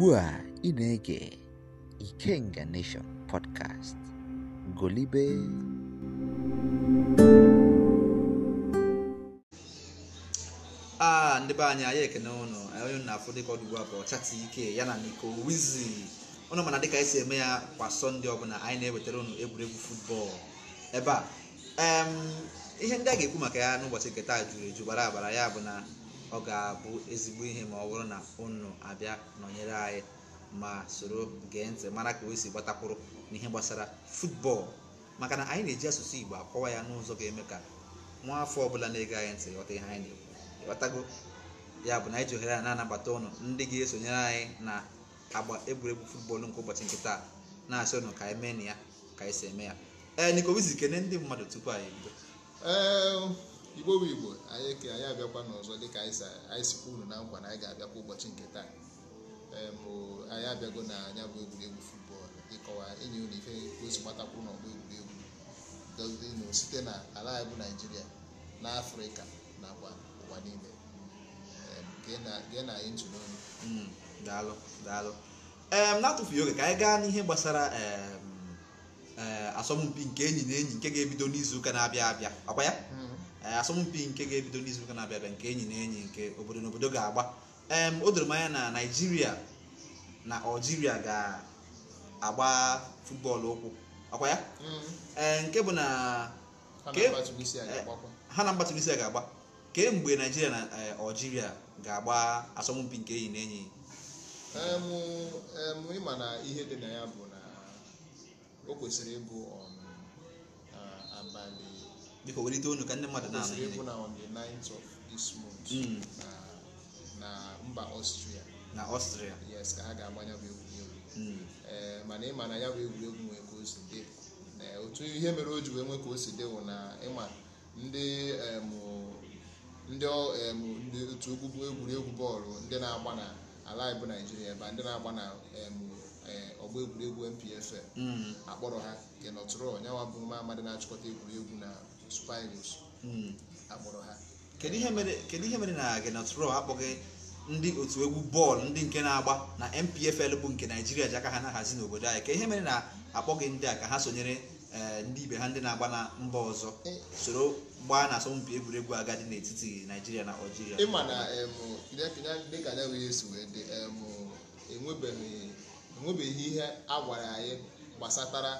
ugbu a ị na-ege Ikenga Nation podcast golibe aa ndị be anyị anyị ekene ụnụ onye na-afụ dịka ọdụ ugbu a bụ ike ya na n'iko Wizi ụnụ mana dịka esi si eme ya kwa sọnde ọbụla anyị na-ewetara ụnụ egwuregwu futbọọlụ ebe a ihe ndị a ga-ekwu maka ya n'ụbọchị nke taa juru eju bara abara ya bụ na ọ ga-abụ ezigbo ihe ma ọ bụrụ na ụnụ abịa nọnyere anyị ma soro gee ntị mara ka o si gbatakwuru n'ihe gbasara futbọọlụ maka na anyị na-eji asụsụ Igbo akọwa ya n'ụzọ ga-eme ka nwa afọ ọbụla na-ege anyị ntị ghọta ihe anyị na-ekwu ya bụ na anyị ji ohere a na-anabata ụnụ ndị ga-esonyere anyị na agba egwuregwu futbọl nke ụbọchị nke taa na-asị ụnụ ka anyị mee na ya ka anyị si eme ya ee nikowizi kene ndị mmadụ tupu anyị ebido igbo bụ igbo anyị ke anyị abịakwa n'ọzọ dịka anyị sikwa na nkwa na anyị ga-abịakwa ụbọchị nke taa bụ anyị abịago na anya bụ egwuregwu futbọọlụ ịkọwa enyi unu ife ozi gbatakwuru n'ọgbọ egwuregwu dozinu site na ala anyị bụ naijiria na afrịka nakwa ụwa niile gee na anyị ntụ n'onu mm, daalụ daalụ na-atụfughị oge ka anyị gaa n'ihe gbasara eh, asọmpi nke enyi na enyi nke ga-ebido n'izu ụka na-abịa abịa ọkwa ya hmm. Eh, asọmpi nke ga-ebido n'izu ụka na-abịa abịa nke enyi na enyi nke obodo na obodo ga-agba o doro manya na naijiria na aljiria ga-agba futbọọlụ ụkwụ akwa ya mm-hmm. eh, nke bụ na eh, ha na mba tunisia ga-agba kemgbe naijiria na aljiria ga-agba asọmpi nke enyi na enyi ma na ihe dị na ya bụ na o kwesịrị ịbụ um, biko welite onu ka ndị mmadụ na-anụ egwu na on the of this month na na mba Ọstria na Ọstria yes ka ha ga-agbanya bụ egwuregwu mana ịma na ya bụ egwuregwu nwee ka o si dị otu ihe mere o ji wee nwee ka o si dị wụ na ịma ndị ndị otu okpukpu egwuregwu bọọlụ ndị na-agba na ala ịbụ naijiria ebe ndị na-agba na ọgba egwuregwu mpfl akpọrọ ha nke nọtụrụ ọnyawa bụ nwa amadị na-achịkọta egwuregwu na super eagles akpọrọ ha kedu ihe mere kedu ihe mere na Gnabry akpọghị ndị otu egwu bọọlụ ndị nke na-agba na MPFL bụ nke naijiria ji aka ha na-ahazi n'obodo anyị ka ihe mere na akpọghị ndị a ka ha sonyere eh, ndị ibe ha ndị na-agba na mba ọzọ eh. soro gbaa na asọmpi egwuregwu agadi n'etiti naijiria na Algeria ịma na dịka dị enwebeghị ihe a gwara anyị gbasatara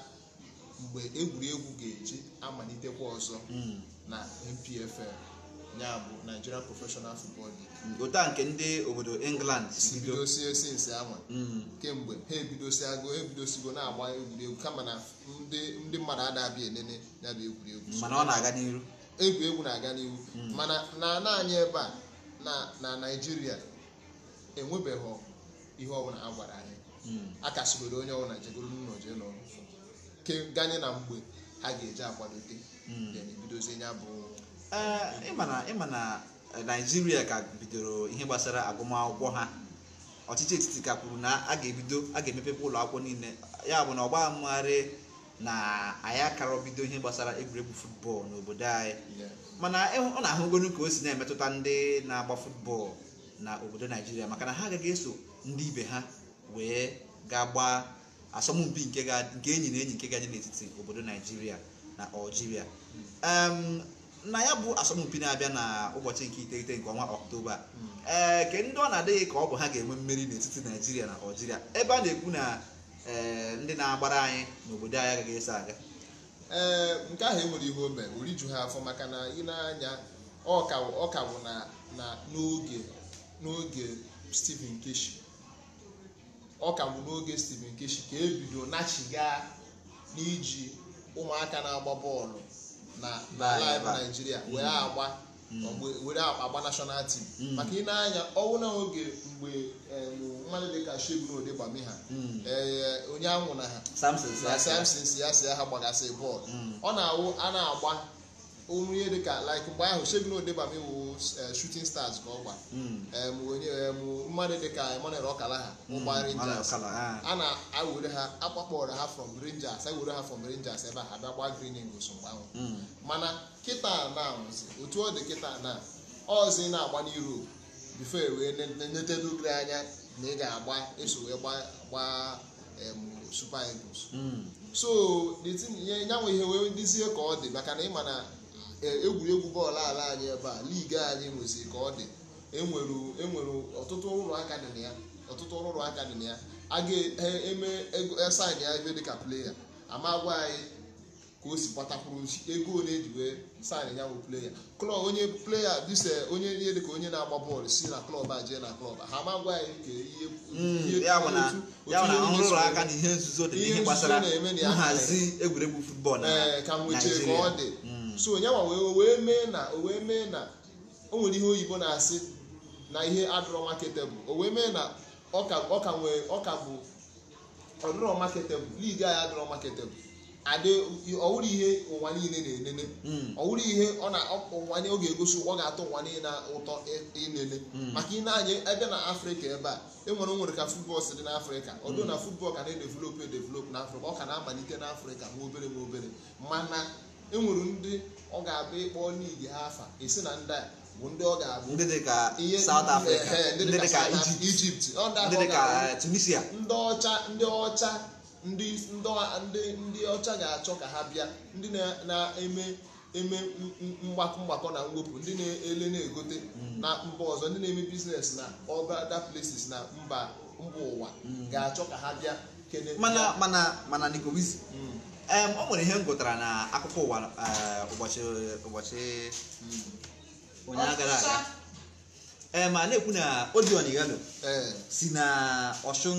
mgbe egwuregwu ga-eji amalitekwa ọzọ hmm. na NPFL ya bụ Nigeria Professional Football League ụta nke ndị obodo England si bidosie sinsi anwa hmm. kemgbe ha ebidosigo ebidosigo na-agba egwuregwu kama na ndị mmadụ adabịa elele ya egwuregwu mana ọ na-aga n'iru egwuregwu na-aga n'ihu hmm. mana na naanị ebe a na Naịjirịa enwebeghị ihe ọbụla a gwara anyị a kasịgoro onye ọbụla jegoro n'ụlọ jee n'ọrụ ganye na mgbe ha ga-eji akwadote hmm. bidozie ya bụ eh, ịma na naijiria eh, ka bidoro ihe gbasara agụmakwụkwọ ha ọchịchị etiti ka kwuru na a ga-ebido a ga emepepe ụlọ akwụkwọ niile ya bụ na ọgba na anyị akara bido ihe gbasara egwuregwu futbọọlụ n'obodo anyị mana ọ na-ahụgonu ka o si na-emetụta ndị na-agba futbọọlụ na obodo naijiria maka na ha agaghị eso ndị ibe ha wee ga gbaa asọmpi nke enyi na enyi nke ga n'etiti obodo naijiria na algeria na ya bụ asọmpi na-abịa na ụbọchị nke iteghete nke ọnwa ọktoba ee eh, ke ndị ọ na-adịghị ka ọ bụ ha ga-enwe mmeri n'etiti naijiria na algeria ebe a na-ekwu na eh, ndị na-agbara anyị n'obodo anyị agaghị eso aga ee eh, nke ahụ enwere ihe o ori oriju ha afọ maka na ị anya ọ ka na n'oge n'oge Stephen Keshi ọ ka bụ n'oge Stephen Keshi ka ebido nachiga n'iji ụmụaka na-agba bọọlụ na. ebe mm. mm. were agba were agba national team mm. maka ị na-anya ọnwụ na oge mgbe e, mmadụ dị ka Shegun gbame ha onye anwụ na ha Samson si ya si ya ha gbagasị bọọlụ ọ a na-agba ụmụ ihe dịka like mgbe ahụ Segun Odebami wu shooting stars ka ọ mmadụ dịka ọkala ha. ụgba Rangers a na-ewere ha akpakpọrọ ha from Rangers ewere ha from Rangers ebe a abịa gba Green Eagles mgbe ahụ mana kịta na otu ọ dị kịta na ọzi na-agba n'Europe before wee netedugri anya na ị ga-agba eso wee gbaa Super Eagles so the thing ya nwe ihe wee dizie ka ọ dị maka na ịma na egwuregwu bọọlụ ala anyị ebe a ligi anyị nwezi ka ọ dị enwere enwere ọtụtụ ụlọ aka dị na ya ọtụtụ ụlọ aka dị na ya a ga-eme esaịn e, e ya ebe dịka pleya ama gwa anyị ka o si gbatakwuru ego ole eji wee saịn ya bụ pleya klọb onye pleya dịse onye ihe dịka onye na-agba bọọlụ si na klọb a jee na klọb ha ma gwa anyị ka ihe ihe hmm, nzuzo na-eme na ya hazi egwuregwu futbọọlụ ee ka nwechee ka ọ dị so onye nwa wee mee na o wee mee na o nwere ihe oyibo na-asị na ihe adọrọ marketable o wee mee na ọka nwee ọka bụ ọdọrọ marketable ligi anyị adọrọ marketable adị ọwụrụ ihe ụwa niile na-enene hmm. ọwụrụ ihe ọ na ụwa ọ ga-egosi ọ ga-atọ ụwa niile na ụtọ inene hmm. maka ị na-anya ebe na afrịka ebe a enwere nwere ka futbọl si dị n'afrịka ọdụ na futbọl hmm. ka e na edevelop na afrịka ọ ka na-amalite n'afrịka ma obere ma obere mana enwere ndị ọ ga-abụ ịkpọ n'igi ha afa esi na ndị a bụ ndị ọ ga-abụ ndị dị ka South Africa e, e, ndị dị ka Egypt ndị dị ka Tunisia ndị ọcha ndị ọcha ndị ndị ọcha ga-achọ ka ha bịa ndị na-eme eme mgbakọ mgbakọ na mwepụ ndị na-ele na-egote hmm. na mba ọzọ ndị na-eme biznes na other places na mba mba ụwa hmm. ga-achọ ka ha bịa mana mana mana Nicobizi o nwere ihe m gụtara na akụkọ ụwa eh, ụbọchị ụbọchị hmm, onye gara aga ma na-ekwu na Odion Igalo eh. si na Ọshụn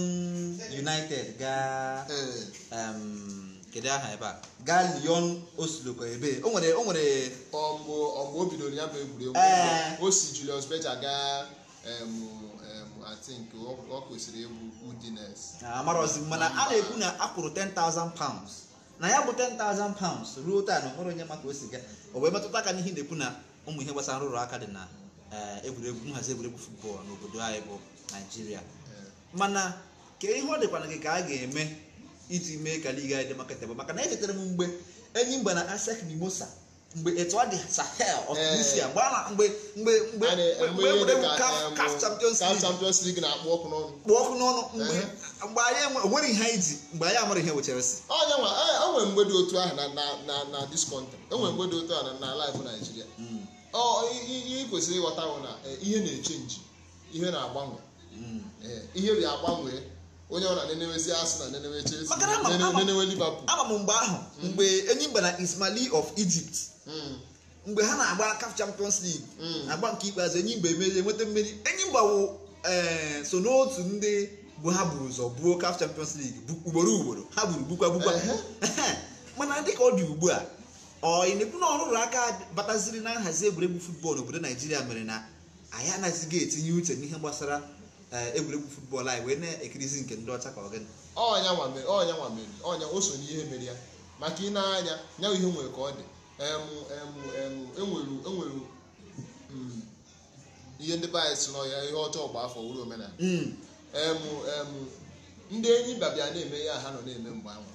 United gaa eh. kedu aha ebe a gaa Lyon osiloko ebe o nwere o nwere ọmgbe o bidoro ya bụ egwuregwu o si Julius Berger gaa I think ọ kwesịrị egwu Udinese ah, amarọzi mana a na-ekwu na akwụrụ 10,000 pounds na ya bụ 10,000 pounds ruo taa na onwere onye maka o si ga o wee metụta aka n'ihe na-ekwu na ụmụ ihe gbasara nrụrụ aka dị na egwuregwu nhazi egwuregwu futbọọlụ n'obodo anyị bụ naijiria mana ka ihe ọ dịkwa na gị ka a ga-eme iji mee ka liga anyị dị maka tebụl maka na echetara m mgbe enyi mgba na asek mimosa mgbe etu ọ dị sahel ọtunisia eh. mgbe mgbe mgbe mgbe mgbe egwuregwu eh, caf champions league na-akpọ ọkụ n'ọnụ mgbe anyị onwere ihe anyị ji mgbe anyị amara ihe wechara si onye nwa e, e, enwere mgbe dị otu ahụ na na na this country enwere mgbe dị otu ahụ na life Nigeria hmm. ihe kwesịrị ịghọta bụ na e, ihe na-echenji ihe na-agbanwe hmm. ihe bi agbanwe onye ọ na nenewezi asị na nenewe Chelsea nenewe Liverpool ama m mgbe ahụ hmm. mgbe Enyimba na Ismaili of Egypt mgbe ha na-agba CAF Champions League agba nke ikpeazụ Enyimba emerie nweta mmeri Enyimba wụ so n'otu ndị bụ ha buru ụzọ buo CAF Champions League ugboro ugboro ha buru gbukwa gbukwa mana dị ka ọ dị ugbu a ọ ịnekwu na ọrụrụ aka bataziri na nhazi egwuregwu futbọọlụ obodo naijiria mere na anyị anaghịziga etinye uche n'ihe gbasara eh, egwuregwu futbọọlụ anyị wee na-ekirizi nke ndị ọcha ka ọ gịnị ọnya nwamere ọnya o so n'ihe mere ya maka ị na-anya ya ihe nwere ka ọ dị enwere e e mm, ihe ndị bayes nọ ihe ọjọọ gba afọ wuru omenala mm. ndị enyi babịa na-eme ya ha nọ na-eme mgbe ahụ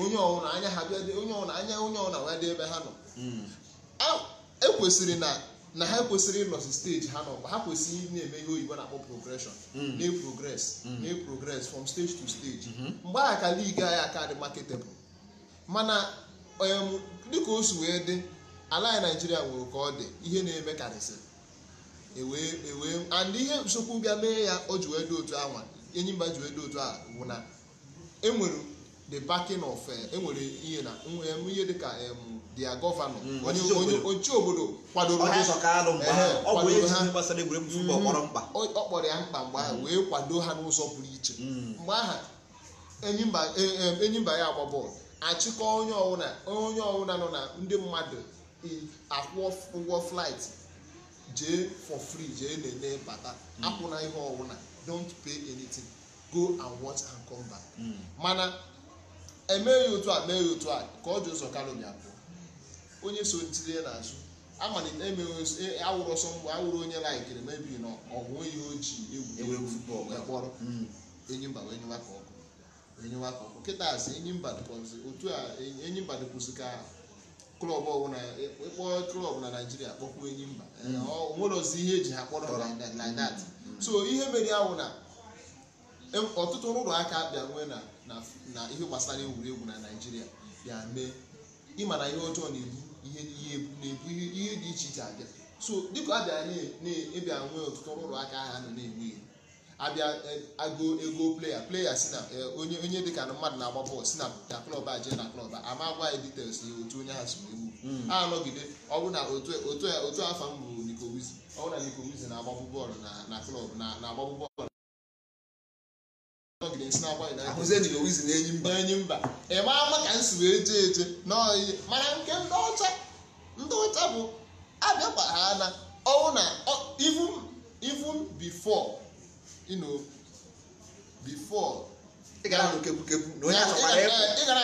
onye ọwụla anya ha bịa onye ọwụna anya onye ọwụna wee dị ebe ha nọ hmm. ekwesịrị na na ha kwesịrị ịnọsi steji ha nọ ha kwesịrị na-eme ihe oyibo na-akpọ progreshon hmm. na progress hmm. progress from stage to stage mgbe aha ka liigi anyị aka dị marketable mana dịka o si wee dị ala anyị naijiria nwere ka ọ dị ihe na-eme karịsịrị ewee ewee and ihe nsokwu bịa mee ya o ji wee dị otu anwa enyimba ji wee dị otu a bụ na enwere the backing of enwere eh, e ihe na eh, ihe dị ka dia gọvanọ onye obodo kwadoro ha ọ kpọrọ ya mkpa mgbe ahụ wee kwado ha n'ụzọ pụrụ iche mm. mgbe aha mba e, e, ya agba bọọlụ achịkọ onye ọbụla onye ọbụla nọ na ndị mmadụ akwụ ụgwọ flaịtị jee for free jee lelee bata hmm. akwụna ihe ọwụna don't pay anything go and watch and come back hmm. mana emeghị otu a meghị otu a ka ọ dị ụzọ kalomi abụọ onye so ntinye n'azụ amalite emeghị awụrụ ọsọ mgbe e, awụrụ onye laikiri mebiri na ọgwụ onye o ji egwuregwu futbọl wee kpọrọ hmm. enyimba wee nyewa ka ọkụ enyimba dịkwụsị ka klọb ọbụla e, e, ịkpọ klọb na naijiria kpọkwuo enyi mba mm. onwere ozi ihe eji ha kpọrọ like mm. Mm. so ihe mere ahụ na e, ọtụtụ ụlọ aka bịa nwee na ihe gbasara egwuregwu na naijiria bịa mee ịma na ihe ọjọọ na-ebu ihe ebu na-ebu ihe dị iche iche abịa so dịka abịa na-ebịa nwee ọtụtụ ụlọ aka ha nọ na-enwe ihe abịa eh, agụ ego pleya pleya si na eh, onye onye dịka na mmadụ na-agba bọọlụ si na na klọb a jee na klọb a ama agwa anyị details na otu onye ha si egwu ha mm. anọgide ọ bụ na otu afa m bụ nikowizi ọ bụ na nikowizi na-agbabụ bọọlụ na klọb na-agbabụ bọọlụ na-enyi mba enyi mba ị ama ka m si wee jee eje n'ọyị mana nke ndị ọcha ndị ọcha bụ abịakwa ha na ọwụ na even before you know ị gara na onye achọkwara ịpụ ị gara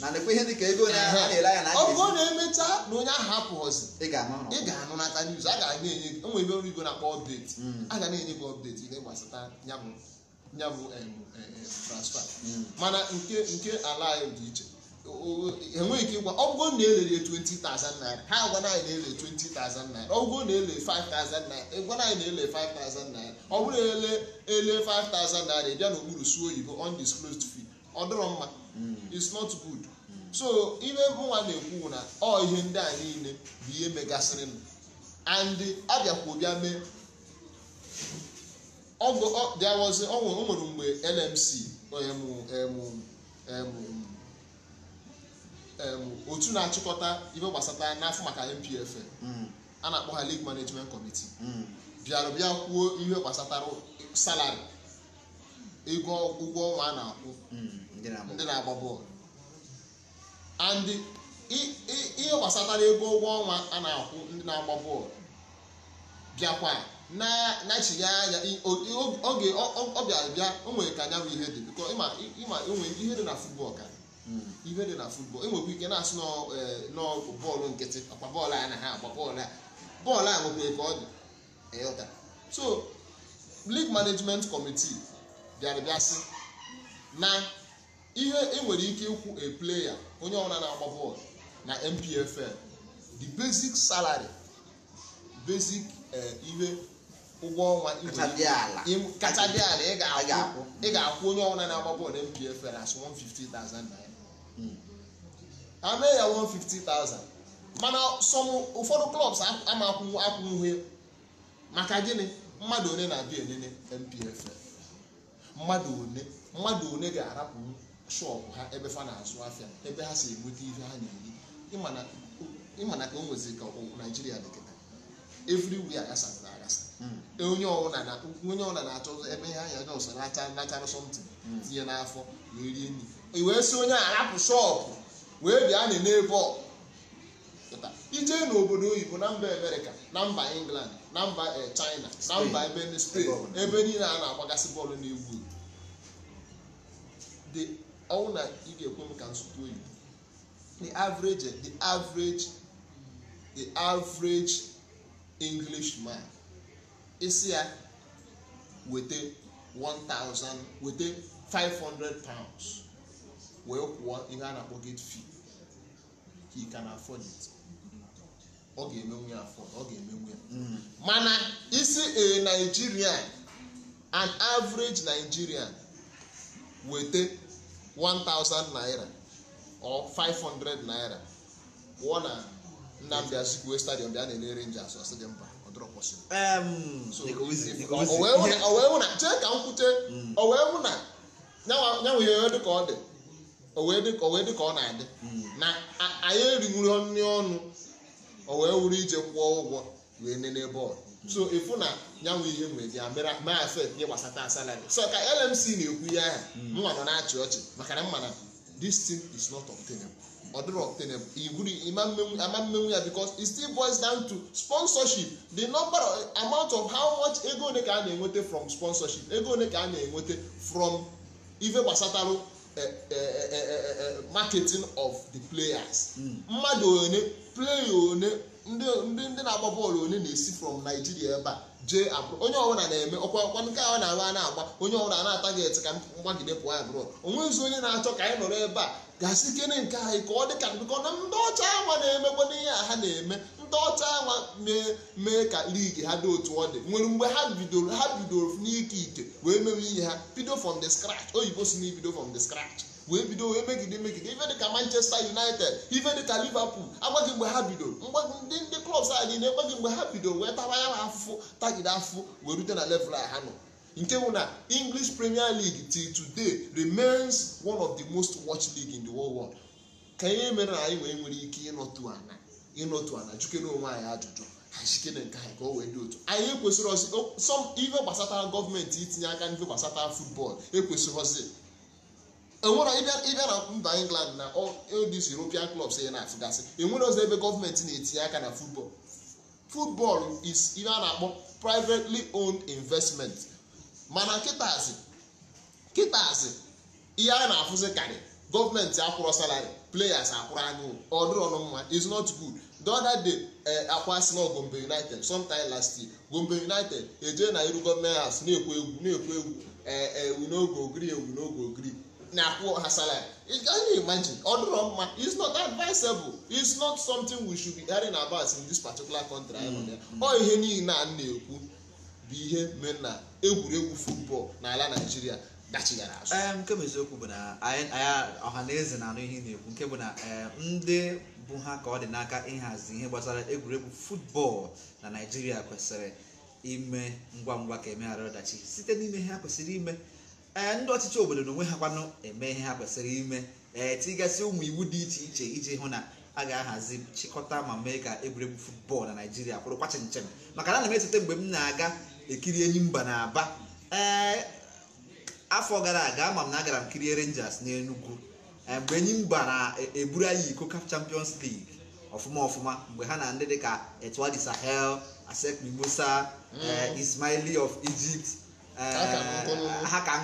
na nekwe ihe dịka a na-ele na ọ na emecha na onye ahụ apụghọzi ị ga anụ news a ga na-enye ọrụ na-akpọ mm. a ga na-enye gị update ihe gbasata bụ transfer mm. mana nke nke ala anyị dị iche enweghị ike ịgwa ọgụgụ na elere 20,000 ha agwa anyị na-ele 20,000 naira ọgụgụ na ele 5,000 ịgwa anyị na ele 5,000 naira ọ bụrụ ele ele 5,000 naira ịbịa n'okpuru suo oyibo undisclosed fee ọ dịrọ mma mm. it's not good so ihe nwa na-ekwu na ọ ihe ndị a niile bụ ihe megasịrị m and abịakwa bịa mee ọgụ ọ nwere mgbe LMC onye m um, um, um, otu na-achịkọta ihe gbasata n'afọ maka MPF a na-akpọ ha League Management Committee bịara bịa kwuo ihe gbasatara salari ego ụgwọ ọnwa a na-akwụ ndị na-agba bọọlụ and ihe gbasatara ego ụgwọ ọnwa a na-akwụ ndị na-agba bọọlụ bịakwa na-achịghị anya oge ọ bịara bịa o nwere ka anyanwụ ihe dị bịkọ ịma ịma enwe ihe dị na futbọl ka ibe hmm. dị na futbọl enwekwa ike na-asụ e, n'ọgụ bọọlụ nkịtị akpa bọọlụ a na ha agba bọọlụ a bọọlụ a nwekwa ka ọ dị eyọta so league management committee bịara na ihe enwere ike ịkwụ a player onye ọbụla na-agba bọọlụ na MPFL the basic salary basic e, ihe ụgwọ ọnwa kacha dị ala ị ga-akwụ onye ọbụla na-agba bọọlụ MPFL as 150,000 naira ha mee ya 150,000 mana sọm ụfọdụ klọbs ama akwụnwe maka gịnị mmadụ one na-abịa elele mpf mmadụ one mmadụ one ga-arapụ shọpụ ha ebe fa na-azụ afịa ebe ha si enweta ihe ha na-eri ịmana ka o nwezi ka naijiria dị kịta everywhere aghasara aghasa hmm. e, onye ọbụla na-achọ ebe ihe anya jọs nacha nachara something tinye n'afọ na rie nri wee si onye arapụ shọpụ wee bịa anyị n'ebe ije n'obodo oyibo na mba amerịka na mba england na mba eh, china na mba ebe spain ebe niile a na-agbagasị bọọlụ na-egwu ọnwụ na ị ga-ekwe m ka oyibo the average the average the average englishman isi ya weta weta 500 pounds wee kwụọ ihe a na-akpọ gate fee ka ị ka na afford it ọ ga-emenwu ya afọ ọ ga-emenwu ya mm. mana isi a eh, Nigerian an average Nigerian weta 1000 naira or 500 naira pụọ na Nnamdi Azikiwe stadium bịa na-ele Rangers ọsị dị mba o wee hụ na chee ka m kwute o wee hụ na nyanwa ihe dị ka ọ dị o wee dị ka ọ na-adị hmm. na anyị eriwuru nri ọnụ o wee wuru ije kwụọ ụgwọ wee nene bọọlụ hmm. so ịfụ na nyanwụ ihe nwere ya mere mee afet ihe gbasata asalari so ka LMC na-ekwu ya aha hmm. mma nọ na-achị ọchị maka na mma na this thing is not obtainable ọ dịrị obtainable igwuri ama mmenwu ya because it still boils down to sponsorship the number amount of how much ego one ka a na enweta from sponsorship ego one ka a na enweta from ife gbasatarụ Eh, eh, eh, marketing of the players hmm. mmadụ one playa one ndị na-agba bọọlụ one na-esi from Nigeria ebe a jee abụrụ onye ọbụla na-eme ọkwa ọkwa nke ahụ na-agba a na-agba onye ọbụla na-atageti ka mgbagide pụọ abụrụ onwezi onye na-achọ ka anyị nọrọ ebe a gasị kene nke anyị ka ọ dị ka na ndị ọcha ahụ na-emekwa n'ihe a ha na-eme ndị ọcha nwa mee ka lig ha dị otu ọ dị nwere mgbe ha bidoro ha bidoro n'ike ike wee mewe ihe ha bido from the scratch oyibo si n'ibido ibido from the scratch wee bido wee megide megide ife dịka manchester united ife dịka liverpool agbaghị mgbe ha bidoro ndị ndị klọbs a niile ekweghị mgbe ha bidoro wee taba ya afụfụ tagide afụfụ wee rute na level a ha nọ nke bụ na english premier league till today remains one of the most watched league in the whole world ka ihe mere na anyị wee nwere ike ịnọtu ana ịnọtu a na onwe anyị ajụjụ achikere nke anyị ka o wee dị otu anyị ekwesịrị ọsị sọm ife gbasata gọọmenti itinye aka n'ife gbasata futbọl ekwesịrị ọsị enwere ịbịa na mba England na odis European clubs ya e na-afụgasị enwere ọzọ ebe gọọmenti na-etinye aka na futbọl futbọl is ihe a na-akpọ privately owned investment mana kịtazi kịtazi ihe a na-afụzi karị gọọmenti akwụrụ salari players akwụrụ anụ ọdụrụ ọnụ mma is not good the other day eh, akwa si na Gombe United sometime last year Gombe United ejee na iru gọọmenti house na-ekwu egwu na-ekwu egwu ewu eh, eh, n'oge ogiri ewu n'oge ogiri na-akwụ ha salary can imagine ọ mma is not advisable is not something we should be hearing about in this particular country ọ ihe niile a na-ekwu bụ ihe mere na egwuregwu football n'ala Nigeria dachigara azụ nke bụ eziokwu bụ na ọha na eze na-anụ ihe na-ekwu nke bụ na ndị bụ ha ka ọ dị n'aka ịhazi ihe gbasara egwuregwu futbọọlụ na naijiria kwesịrị ime ngwa ngwa ka emeghara ọdachi site n'ime ihe ha kwesịrị ime ee eh, ndị ọchịchị obodo na onwe ha kwanụ eme ihe ha kwesịrị ime ee eh, tigasị ụmụ iwu dị iche iche iji hụ na a ga-ahazi chịkọta ma mee ka egwuregwu futbọọlụ na naijiria kwụrụkwa chinchem maka na ana m esote mgbe m na-aga ekiri enyi mba na aba ee eh, afọ gara aga ama m na agara m kirie rangers n'enugwu Eh, mgbe enyi mba na-eburu eh, anyị iko champions league ọfụma ọfụma mgbe ha na ndị dịka Etoile Sahel Asec Mimosa mm. eh, Ismaili of Egypt ha ka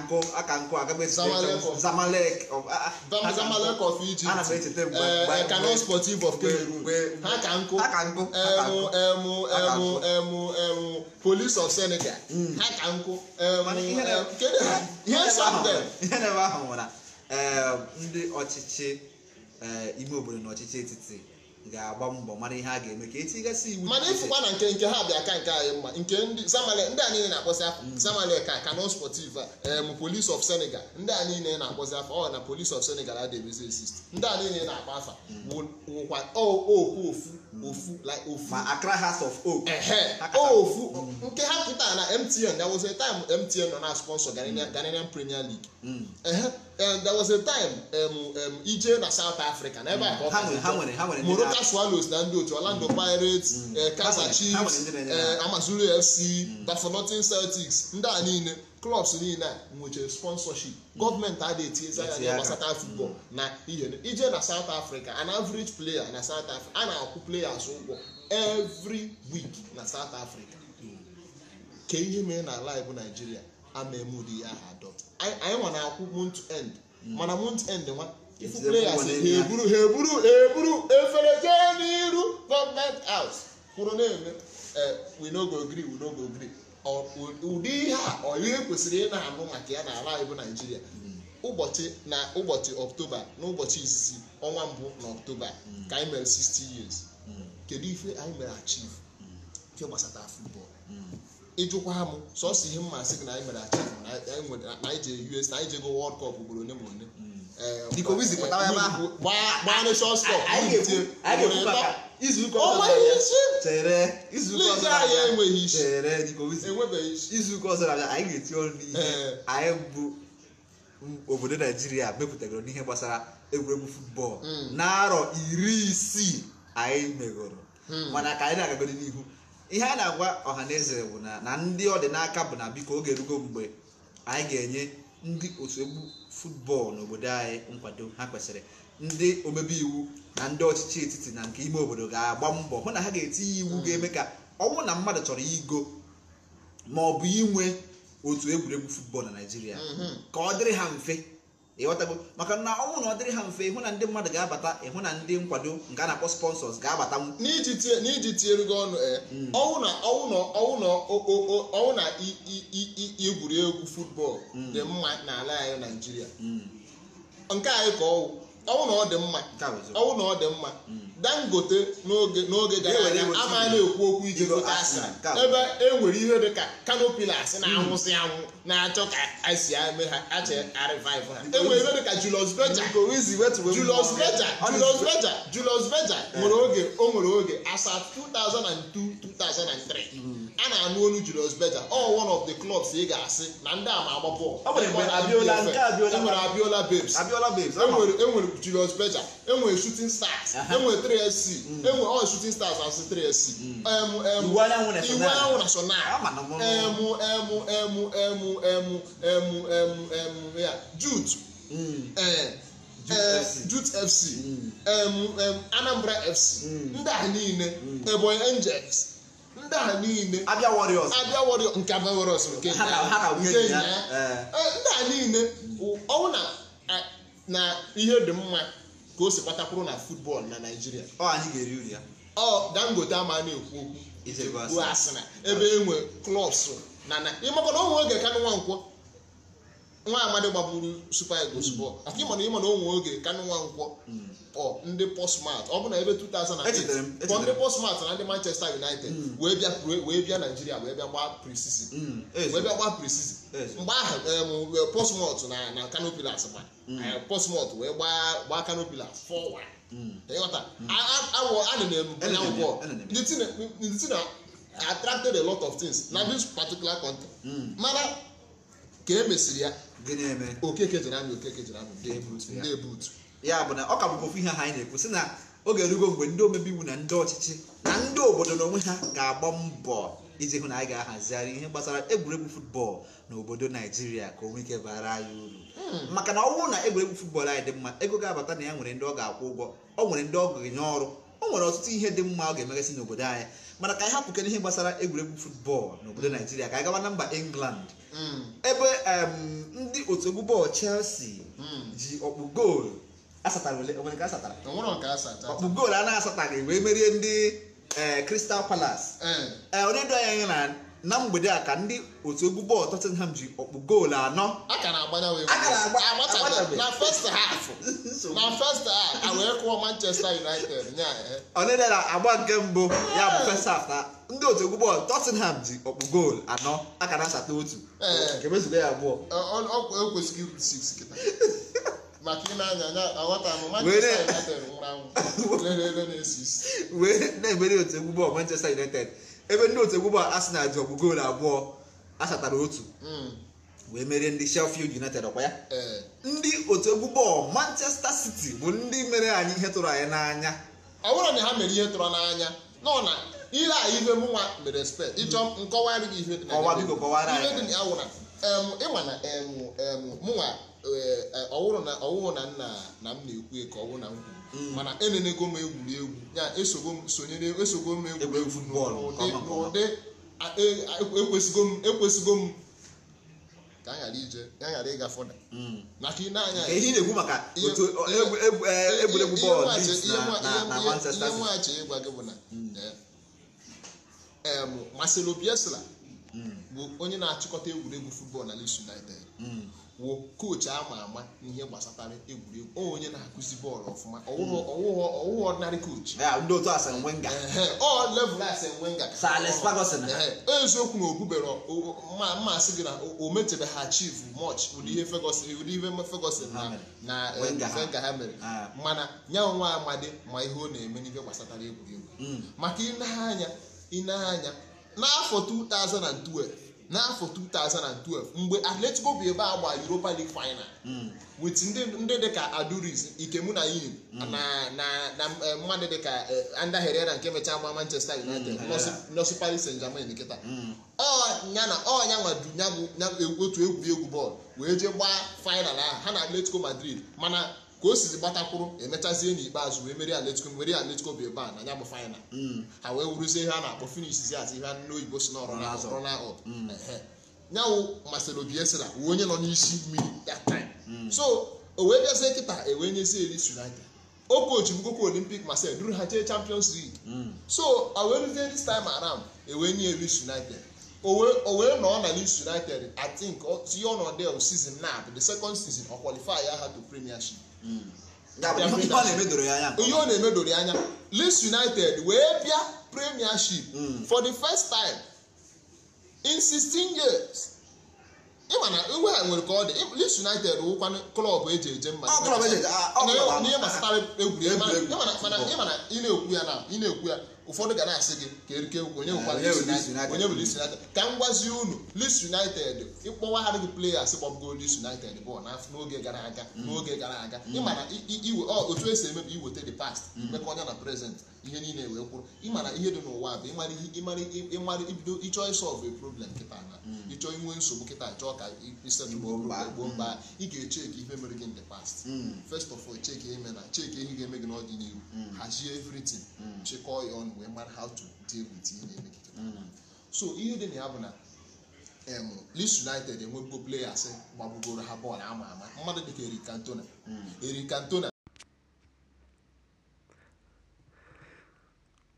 nkụ ka of Egypt Sportive of ha ka nkụ emu emu emu of Senegal ha ka nkụ emu ihe na ahụ nwere ndị ọchịchị ime obodo na ọchịchị etiti ga-agba mbọ mara ihe a ga-eme ka etigasị iwu mana ịfụkwa na nke nke ha bịa ka nke anyị mma nke ndị zamale ndị a niile na-akpọzi afọ mm. zamale ka kano sportiv em police of senegal ndị a niile na-akpọzi afọ ọ na police of senegal adịghị exist ndị a niile na-akpọ afa mm. wụkwa okwu ofu ofu like ofu ma Accra House of Hope ofu mm. nke ha pụtara na MTN there was a time MTN nọ na sponsor mm. Ghanaian Premier League mm. and there was a time ije na South Africa na ebe a ka ọ Moroka Swallows na ndị otu Orlando Pirates eh, Kaizer Chiefs eh, Amazulu FC Bafokeng Celtics ndị a niile klọbs niile a nwechara sponsorship gọọmenti na-etinye etinyezi anya ya gbasata futbọl na ihe ije na South Africa an average player na South Africa a na-akwụ players ụgwọ every week na South Africa ka ihe mee na ala bụ naijiria ama emudi ya ha adọt anyị nwa na-akwụ month end hmm. mana month end nwa ifu players ha eburu ha eburu eburu efere jee n'iru gọọmenti house kwuru na-eme eh, we no go gree we no go ụdị ihe a ọ ihe kwesịrị ị na-anụ maka ya n'ala anyị bụ naijiria ụbọchị na ụbọchị ọktoba n'ụbọchị izizi ọnwa mbụ na ọktoba ka anyị mere 60 years kedu ife anyị mere achieve nke gbasata futbọọlụ ịjụkwa m sọsọ ihe mmasị gị na anyị mere achieve na anyị jere US na anyị jego Wọld Kọp ugboro one ma one. dịka owizi izuụka ọzọ na anyị ga-eti ọrụ n'ihe anyị bụ obodo naijiria mepụtagoro n'ihe gbasara egwuregwu futbọọlụ hmm. na-arọ iri isii anyị megoro hmm. mana ka anyị na-agagoro n'ihu ihe a na-agwa ọha na eze bụ na ndị ọdịnaka bụ na biko oge erugo mgbe anyị ga-enye ndị otu egwu futbọọlụ n'obodo anyị nkwado ha kwesịrị ndị omebe iwu na ndị ọchịchị etiti na nke ime obodo ga-agba mbọ hụ na ha ga-etinye iwu mm. ga-eme ka ọnwụ na mmadụ chọrọ igo ma ọ bụ inwe otu egwuregwu futbọọlụ na Naịjirịa mm-hmm. ka ọ dịrị ha mfe ịghọtago maka na ọ na ọ dịrị ha mfe ịhụ na ndị mmadụ ga-abata ịhụ na ndị nkwado nke a na-akpọ sponsors ga-abata m. n'iji tinyere gị ọnụ eh, hmm. ọnwụ na egwu futbọọlụ hmm. dị mma n'ala anyị Naịjirịa hmm. nke anyị ka ọwụ ọwụ na ọ dị mma hmm. dangote n'oge n'oge gara aga ama na-ekwu okwu iji hmm. ebe e nwere ihe dị ka kanopilas hmm. na-anwụsị anwụ na-achọ ka asi eme ha ache ariviv ha e ihe ka Julius Berger Julius Berger Julius Berger Julius nwere oge o nwere oge asa 2002 2003 a na-anụ onu Julius Berger all one of the clubs ị ga-asị na ndị ama agba bọọlụ enwere Abiola Babes enwere Julius Berger enwere Shooting Stars enwere 3SC mm. enwere all Shooting Stars asị 3SC mm. Iwe Anyanwụ National emu emu emu emu emu emu emu emu ya Jude Jute mm. eh, eh, FC Anambra FC ndị a niile Ebonyi eh, Angels ndị a niile abịa warriors warriors nke abịa nke eh. Eh, ndị a niile ọwụ na ihe dị mma ka o si kpatakwuru na football na Naịjirịa ọ anyị ga-eri uri Dangote ama na-ekwu okwu ebe enwe klọs na ịmakwa na onwe oge ka nwa nkwọ nwa amadi gbagburu super eagles bọọlụ hmm. afọ ịma na ịma na onwe oge kanụ nwa nkwọ hmm. ọ ndị postmart ọ bụ na ebe 2008 kpọ ndị postmart na ndị manchester united hmm. wee bịa wee bịa naijiria wee bịa gbaa prisisin wee bịa gbaa prisisin mgbe ahụ postmart na na kano pillars ma postmart wee gbaa gbaa kano pillars 4-1 ịghọta awọ anụ na-ebu anya ndị ti na attracted a lot of things na this particular country mana ka e mesịrị ya gịnị eme okeke jere okeke jere ebutu ya bụ na ọ ka bụkwa ofu ihe ha anyị na-ekwu sị na oge erugo mgbe ndị omebi iwu na ndị ọchịchị na ndị obodo na onwe ha ga-agba mbọ iji hụ na anyị ga-ahazigharị ihe gbasara egwuregwu futbọọlụ na obodo naijiria ka onwe ike bara anyị uru hmm. maka na ọ bụrụ na egwuregwu futbọl anyị dị mma ego ga-abata na ya nwere ndị ọ ga-akwụ ụgwọ ọ nwere ndị ọ ga-enye ọrụ o nwere ọtụtụ ihe dị mma ọ ga-emegasị n'obodo anyị mana ka anyị hapụkere ihe gbasara egwuregwu futbọọlụ n'obodo naijiria ka anyị gawa na mba england ebe ndị otu egwu bọọlụ chelsea ji ọkpụ goolu asatara ọkpụ goolu a na-asataghị wee merie ndị kristal palace onye anya na na mgbede a ka ndị otu egwu bọọlụ Tottenham ji ọkpụ goolu anọ a ka na-agba na a na a wee kụọ Manchester United eh. na agba nke mbụ ya bụ first half na ndị otu egwu bọọlụ Tottenham ji ọkpụ goolu anọ a ka na-asata otu wee eh. ya abụọ na-emeri otu egwu bọọlụ Manchester United ebe ndị otu egwu bụ Arsenal ji ọgụ goolu abụọ asatara otu hmm. wee merie ndị Sheffield United ọkwa ya eh. ndị otu egwu Manchester City bụ ndị mere anyị ihe tụrụ anyị n'anya ọ bụrụ na ha mere ihe tụrụ n'anya nọ na ile a ihe mụnwa mere spe ịchọ nkọwara gị ihe dị ịma na mụnwa eh, eh, ọwụrụ na nna na m na-ekwu ka ọ wụrụ na m kwuru Mm. mana elenego m egwuregwu ya sonyere esogo m egwuregwu n'ụdị e, ekwesịgo m ka ije ya ghara ịga fọda mm. maka ị na-anya ihe na maka otu egwuregwu bọọlụ na ịgwa gị bụ na mm. e, Marcelo bụ onye na-achịkọta egwuregwu futbọọlụ na Leeds United kwuo kochi ama ama ihe gbasatara egwuregwu onye na-akụzi bọọlụ ọfụma ọwụghị ọdịnarị kochi level Arsene Wenger eziokwu na obubere mmasị gị na o metebeghị achieve mọch ụdị ihe ụdị ihe Ferguson na Wenger ha mere eh, mana ya nwa amadi ma ihe ọ na-eme n'ihe gbasatara egwuregwu mm. maka ịneanya n'afọ 2012 n'afọ 2012 mgbe atletico bụ ebe a gba europa league final hmm. wit ndị ka aduris ikemunayim na hmm. eh, mmadụ dịka eh, anda na nke mechaa gba manchester united hmm. nọsụ paris saint germain nkịta ọnyana ọnya nwadunya otu egwuregwu bọọlụ wee jee gbaa final ahụ ha na atletico madrid mana ka o sizi gbatakwụrụ emechazie n'ikpeazụ wee merie atletico merie atletico bụ ebe a na ya bụ mm. ha wee wuruzie ihe a na-akpọ finishizi azi ihe ndị oyibo si n'ọrụ nyanwụ masịrị obi esira wee onye nọ n'isi mmiri that time mm. so o wee bịazie kịta e wee nyezie Leeds United o kochi bugokwa Olympic Marseille duru ha jee Champions League mm. so o wee rụzie this time around e wee nye Leeds United o wee nọ na Leeds United I think tinye ọnọdụ season na the second season ọ ya ha to Premiership ihe ọ na-emedoro anya Leeds United wee bịa premiership hmm. for the first time in 16 years ịma na iwe a nwere ka ọ dị Leeds United wụkwanụ klọb eji eje mma e ah, n'ihe gbasara egwuregwu mana ị na-ekwu ya na ị na-ekwu ya ụfọdụ ga na-asị gị ka erike onye bụ Leeds United ka m gwazie unu Leeds United ịkpọwaghara gị players kpọbụgo Leeds United bọọlụ n'oge gara aga n'oge gara aga ịma na otu esi emebi iweta the past imekọnya mm. na present ihe niile wee kwụrụ ịmara ihe dị n'ụwa bụ ịmara ibido ịchọ ịsọlvụ problem kịta na hmm. ịchọ inwe nsogbu kịta chọọ ka isetụgboo mba hmm. ị ga-echeki ihe mere gị in the past hmm. first of all cheki eme na chek ihe ga-eme gị n'ọdịnihu hazie everything chịkọọ ya ọnụ wee mara ha to deal with ihe na-eme gị so ihe dị na ya bụ na Leeds United enwebugo players gbagbugoro ha bọọlụ ama ama mmadụ dịka Eric Cantona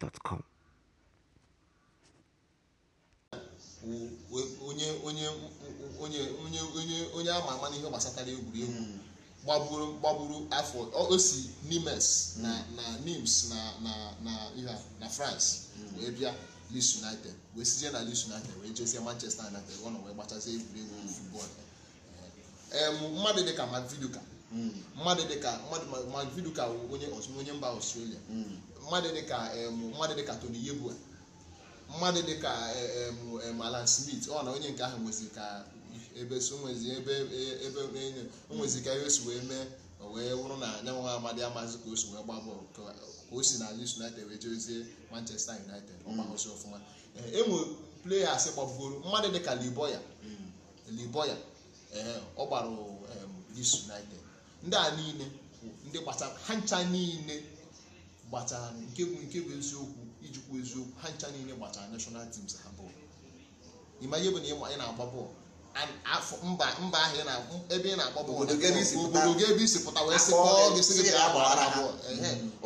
gmail.com onye onye onye onye onye onye ama ama n'ihe gbasatara egwuregwu hmm. gbagburu gbagburu afọ o si nimes hmm. na na nims na na na ihe na france hmm. wee bịa Leeds United wee sizie na Leeds United wee jezie Manchester United ọ nọ wee gbachazie egwuregwu futbọl mmadụ dịka Maviduka mmadụ dịka mmadụ Maviduka onye onye mba Australia mmadụ dịka mmadụ dịka Tony Yeboah mmadụ dịka Alan Smith ọ na onye nke ahụ nwezi ka ebe onwezi ka ebe o si wee mee wee wụrụ na anyanwụ amadi amazi ka o si wee gba bọọlụ ka o si na Leeds United wee jezie Manchester United ọgbaghosi ọfụma enwe e pleyas gbabugoro mmadụ dịka Liboya Liboya ee ọ gbara Leeds United ndị a niile ndị gbasara ha ncha niile gbatara nke bụ nke bụ eziokwu ijikwa eziokwu ha ncha niile gbachara national teams ha bọọlụ ịma ihe bụ na ị na-agba bọọlụ afọ mba mba ahụ ebe ị na-agba bọọlụ obodo gị ebe isi pụta wee sị gị sị gị gbara bọọlụ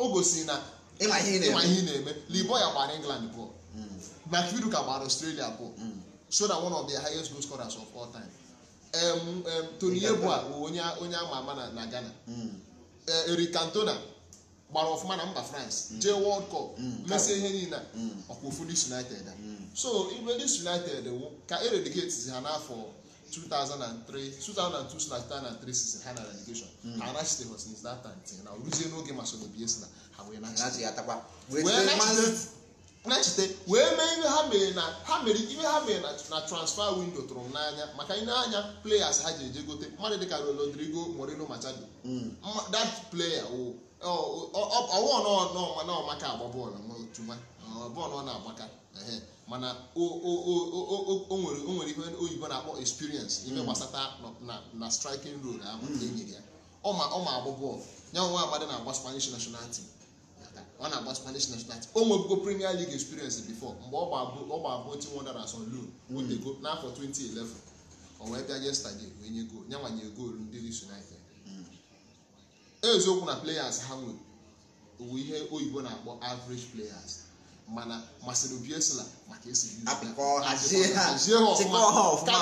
o gosiri na ịma ihe na-eme libo ya gbara england bọọlụ hmm. ka gbara ọstrelia bọọlụ hmm. so na one of the highest goal scorers of ama ama na ghana hmm. eh, cantona gbara ọfụma na mba france mm. jee world cup mm. mesie ihe niile mm. ọkwa ofu dis united so ibe united wụ ka eredicate ha n'afọ 2003 2002 sina 2003 season ha na relegation ha anachite ha since that time tinye na ruzie n'oge masonobi esi na ha wee nachite na-echite wee mee ihe ha mere na ha mere ihe ha mere na transfer window tụrụ m n'anya maka ị na players ha ji eje gote mmadụ dịka Rodrigo Moreno Machado that player o ọwụ oh, oh, oh, nọ maka agba bọọlụ tuma bọọlụ ọ na-agbaka mana o nwere ihe oyibo na-akpọ experience ime hmm. gbasata na striking role ahụ hmm. enyere ya ọ ma agba bọọlụ ya nwa amadị na-agba Spanish national team ọ na-agba Spanish national team o nwebugo Premier League experience before mgbe ọ gba abụ Team Wanderers on loan wotego hmm. n'afọ 2011 o wee bịa yesterday wee nye goolu ya nwanye goolu ndị Leeds United eziokwu na players ha nwere owe ihe oyibo na-akpọ average players mana masịrị Obiesla maka esi ka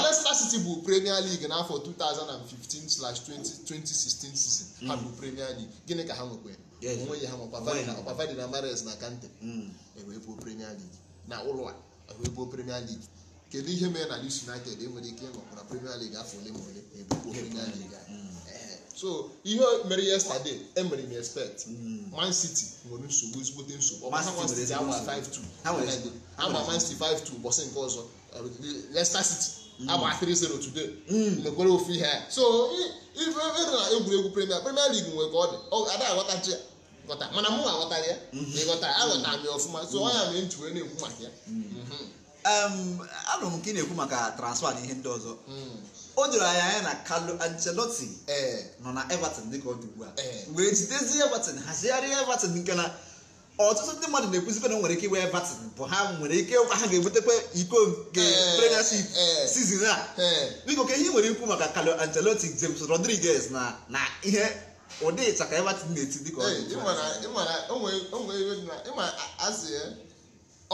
Leicester City bụ Premier League n'afọ 2015/2016 season ha bụ hmm. Premier League gịnị ka ha nwekwara onwe ya ha nwe Opavade na Mares na Kante hmm. ewee Premier League na ụlọ a e bụ Premier League kedu ihe mere na Leeds United enwere ike ịnọkwa na Premier League afọ ole ma ole ebubo Premier League so ihe mere yesterday emere m expect man city nwere nsogbu ezigbote nsogbu agba man city 5-2 ụbọchị nke ọzọ leicester city agba 3-0 mm. today mm. mekwere ofu ihe ya so ife ere na egwuregwu premier premier league nwere ka ọ dị ada aghọtachi ya ghọta mana mụ aghọtara ya na mm-hmm. ịghọtara aghọtara m mm-hmm. ya ọfụma so ọnya mere ntụre na-ekwu maka ya mm. mm-hmm. anụrụ m nke ị na-ekwu maka transfer na ihe ndị ọzọ o doro anya anya na Carlo Ancelotti eh, nọ na Everton dịka ọ dị ugbua a wee eh. jidezie Everton hazigharịa Everton nke na ọtụtụ ndị mmadụ na-ekwuzibe na nwere ike iwe Everton bụ ha nwere ike ha ga-ebutekwa iko nke eh, Premiership season a biko ka ihe nwere ikwu maka Carlo Ancelotti James Rodriguez na na ihe ụdị Everton na-eti dịka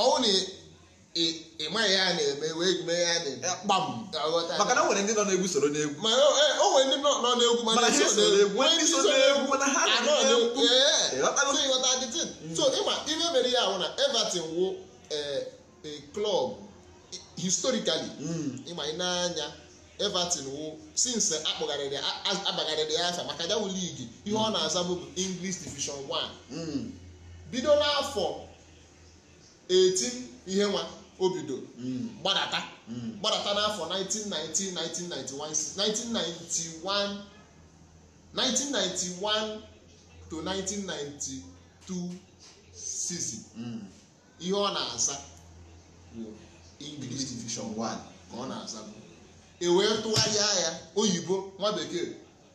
ọ ị ya na-eme wee mee eh, ya kpam maka na o nwere ndị nọ n'egwu soro n'egwu e, o nwere ndị nọ n'egwu n'egwu ndị ah, nọ eh, eh. Hmm. ihe mere ya ahụ na Everton wụ club historically hmm. ịma ị n'anya Everton wụ since akpọgharịrị abagharịrị ya afa maka ya ihe ọ hmm. na-aza bụ English Division 1 bido n'afọ 18 ihe nwa o bido hmm. gbadata hmm. gbadata n'afọ 1991 1991 to 1992 season hmm. ihe ọ na-aza English division 1 ka ọ na-aza bụ e wee tụgharịa ya oyibo nwa bekee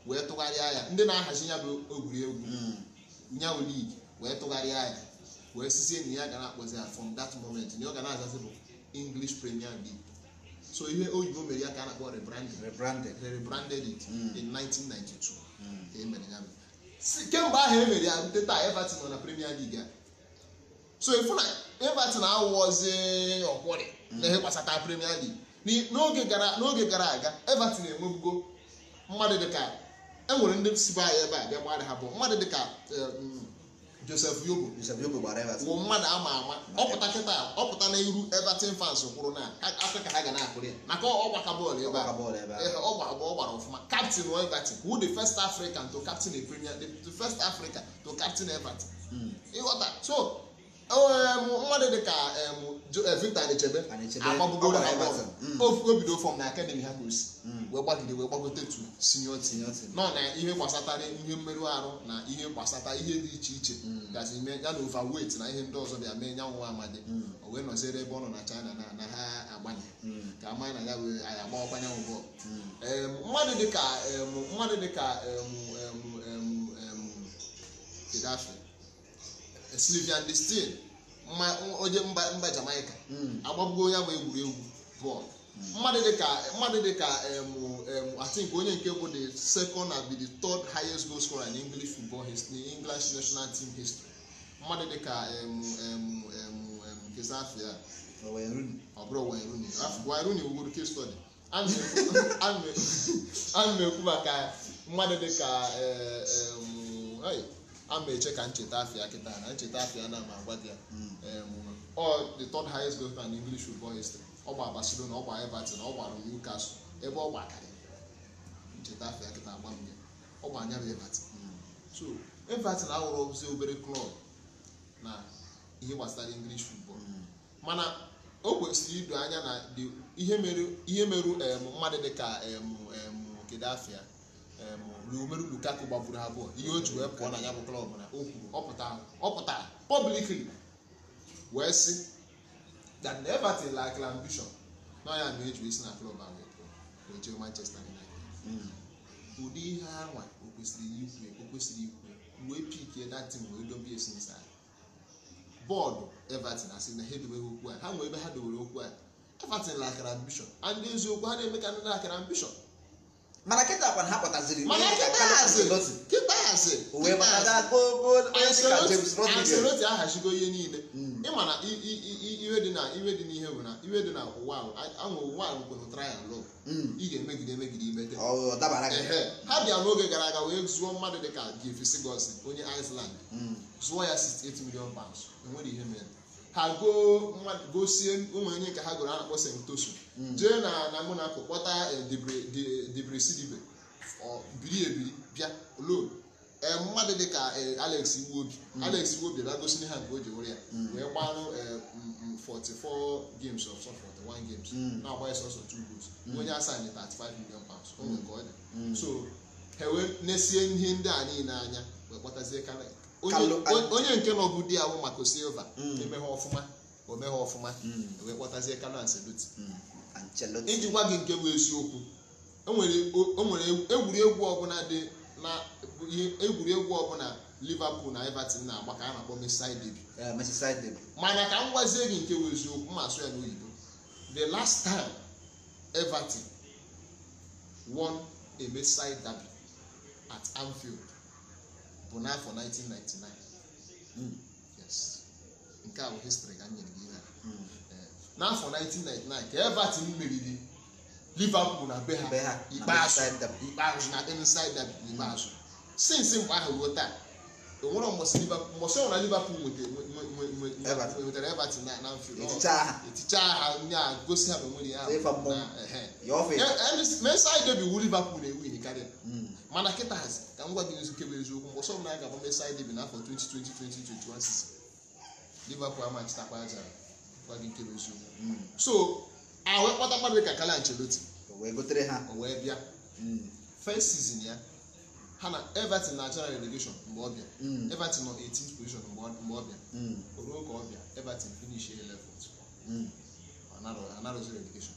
wee tụgharịa ya ndị na-ahazi ya bụ egwuregwu nyawu ligi wee tụgharịa ya wee sizi enyi ya ga na-akpọzi ya from that moment na ọ ga na-azazi bụ english premier league so ihe oyibo mere ya ka a na-akpọ rebranded rebranded it hmm. in 1992 hmm. ka emere ya kemgbe ahụ emere ya rute taa everton nọ na premier league a so efu na everton awụọzi ọkwụrị hmm. na ihe gbasata premier league n'oge gara aga everton enwebugo mmadụ dịka enwere ndị sibe anyị ebe a bịa gbara ha bụ mmadụ dịka eh, Joseph Yobo Joseph Yobo gbara Everton bụ mmadụ ama ama ọpụta kịta ọpụta n'iru Everton fans kwụrụ na Afrịka ha ga na-akwụrụ ya maka ọgbaka bọọlụ ebe a ọ gbara ọfụma captain Everton who the first African to captain the Premier the first African to captain Everton hmm. ịghọta so mmadụ dị ka Eh, Victor na echebe mm. ha bọọlụ o bido fọm na akademi ha ka o wee gbagide wee gbagote tu nọ na ihe gbasatara ihe mmerụ arụ na ihe gbasata ihe dị iche iche mm. gazi ime ya na na ihe ndị ọzọ bịa mee nyanwụ amadi mm. o wee nọziere ebe ọ nọ na China na na ha agbanye ka ama na ya wee anyị bọọlụ mmadụ dịka mmadụ onye mba Jamaica hmm. agbagbugo onye bụ egwuregwu bọọlụ mmadụ dị ka mmadụ dịka atink onye nke bụ the second and the third highest goal scorer in English football history English national team history mmadụ dịka kezafia ọ bụrụ Wayne Rooney ah, wugoro case study ana m ekwu maka mmadụ dịka ama eche ka ncheta afia kịta na ncheta afia na ma agwa di ya hmm. ọ dị third highest goal in English football history ọ gba Barcelona ọ gba Everton ọ gbara Newcastle ebe ọ gbakarị ncheta afia kịta agba mmiri ọ gba anya bụ Everton hmm. so Everton ahụrụ ozi obere klọb na ihe gbasara English football hmm. mana o kwesịrị ido anya na ihe merụ mmadụ dịka kedafịa na Romelu Lukaku gbagburu abụọ ihe o ji wee pụọ na ya bụ klọb na o kwuru ọ pụtara publicly wee sị that Everton like ambition na ya na eji isi na klọb ahụ wee Manchester United ụdị ihe anwa o kwesịrị ikwe o kwesịrị ikwe wee pikie datin wee dobe esi bọọdụ Everton asị na ha edobeghị okwu a ha nwee ebe ha dowere okwu a Everton lakara ambition and eziokwu ha na-eme ka ndị na-akara ambition mana kịta kwana ha kpataziri mana kịta hazi anseloti ahachigo ihe niile hmm. ịma na iwe dị na iwe dị n'ihe bụ na iwe dị na ụwa ahụ ụwa ahụ kwere ụtara ya lụ hmm. ị ga-emegide emegide imete ha bịa n'oge gara aga wee zụọ mmadụ dịka Jeffrey Sigurdsson onye Iceland hmm. zụọ ya 68 million pounds enwere ihe mere ha goo gosie ụmụnye nke ha gụrụ a na-akpọ sentosu hmm. jee na na monaco kpọta e, debresidibe biri ebiri bịa lon ee mmadụ dị ka e, alex iwobi hmm. alex iwobi bịa gosi ha nke o ji were ya hmm. wee gbanụ 44 e, games of 41 games na-agba sọsọ 2 goals onye asaa nye 35 million pounds o nwere nke ọ dị so ha wee nesie ihe ndị a niile anya wee kpọtazie karịa. onye nke nọbụ di ya wụ maka silva hmm. emeghe ọfụma omeghe ọfụma hmm. e wee kpọtazie Carlo hmm. Ancelotti iji gwa gị nke bụ eziokwu enwere egwuregwu ọbụla dị na egwuregwu ọbụla Liverpool na Everton na agbaka a na-akpọ Merseyside derby eh, mana ka m gwazie gị nke bụ eziokwu ma asụ ya n'oyibo the last time Everton won a Merseyside derby at Anfield bụ n'afọ 1999 yes nke a bụ histrị ka m nyere gị ihe hmm. eh, n'afọ 1999 ka everton meriri liverpool na be ha ikpeazụ na inside derby ikpeazụ since mgbe ahụ ruo taa onwere mbọsị ọnwụna liverpool nwetara everton na mfield eticha ha ndị a gosi ha eh, eh, ma nwere ya meside derby wu liverpool na-ewu ihe karịa hmm. mana kịta hazi ka m gwa gị eziokwu bụ eziokwu mgbe ọsọ m na-aga gbamesa anyị bi n'afọ 2020 2021 season Liverpool amachitakwa aja gwa gị nke bụ eziokwu mm. so ahụ kpọta mmadụ ka Carlo Ancelotti wee gotere ha o wee bịa mm. first sizin ya ha na Everton na achara relegation mgbe ọ bịa mm. Everton nọ 18th position mgbe ọ bịa o ruo ka ọ bịa Everton finish 11th anarọzi relegation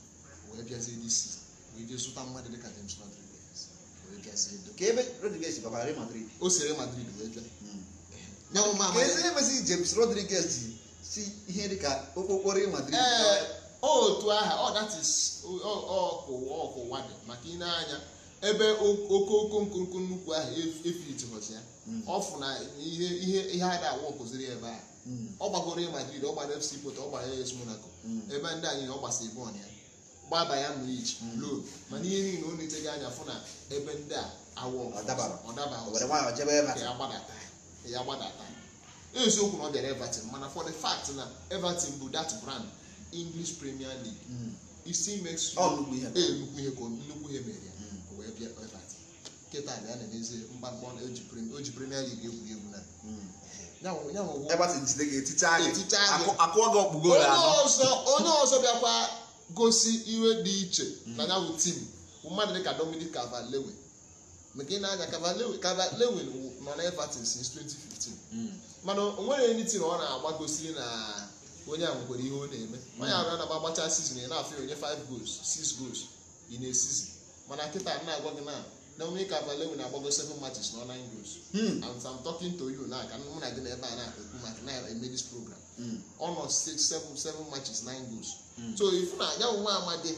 wee bịazie this season e wee jee zụta mmadụ dịka James Rodriguez ka ebe Rodriguez bakwara Real Madrid o si Real Madrid wee bịa ezi emezi James Rodriguez ji si ihe dị ka okpokporo Real Madrid eh, otu aha ọ oh, datis ọkụwa ọkụwa dị maka ị na-anya ebe okoko nkonko nnukwu ahụ efitihọzi e ya hmm. ọfụ na ihe ihe ihe a da-awa ọkụziri ebe a hmm. ọ gbagoro Real Madrid ọ gbara FC Porto ọ gbara AS Monaco hmm. ebe ndị anyị ọ gbasa ibon ya gbaba ya ma iji loo mana ihe niile ọ anya fụ na ebe ndị a awọ ya gbadata eziokwu na ọ bịara Everton mana for the fact na Everton bụ that brand English Premier League isi ihe ka nnukwu ihe mere ya wee bịa na-emezi na Premier League egwuregwu na jide onye ọzọ bịakwa gosi iwe dị iche na ya bụ tim mmadụ ka Dominic Cavalewe maka ị na aga Cavalewe Cavalewe nọ na Everton since 2015 hmm. mana o nwere ndị tim ọ na-agba gosi na onye ahụ nwere ihe ọ na-eme onye ahụ na-agba gbacha sizin ị na-afụ onye 5 goals 6 goals ị na-esizi mana nkịta na-agwa gị na Dominic Cavalewe na-agbago 7 matches na ọ 9 goals hmm. and I'm talking to you na ka mụ na gị na ebe a na-ekwu maka na-eme program ọnọ mm. six seven seven matches nine goals mm. so ifu na ya onwe amadi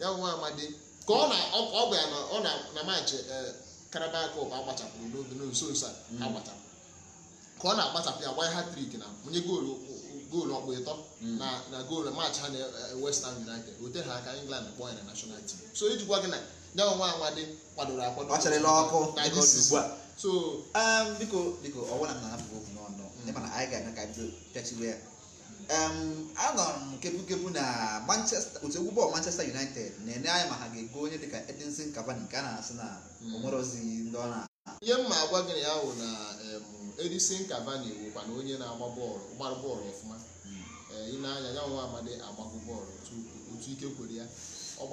ya onwe amadi ka ọ na ọ gwa ya na ọ na na match eh, Carabao Cup agbachapụrụ n'oge n'nso nso a mm. agbachapụ ka ọ na-agbachapụ ya gbanye hat-trick na onye goolu goolu ọkpụ ịtọ na na goolu match ha na eh, West Ham United ote ha aka England kpọọ ya na national team so ijikwa gị na ya onwe amadi kwadoro akwado ọchịrịla ọkụ na this is so um, biko biko ọwụna m na-afụ okwu n'ọnụ ndị mm. mana anyị ga-eme ka bido pịachiwe ya um, anọrọ m kepụkepụ na manchester otu egwu bọọlụ manchester united na-enye anyị ma ha ga-ego onye dịka edinson cavani nke a na-asị na mm. onwerozi ndị ọ na ihe mma agwa gịnị ya hụ na um, edinson cavani wụkwa na onye na-agba bọọlụ gbara bọọlụ ọfụma mm. eh, ị na-anya ya nwa amadi agbagụ bọọlụ otu ike kwere ya ọ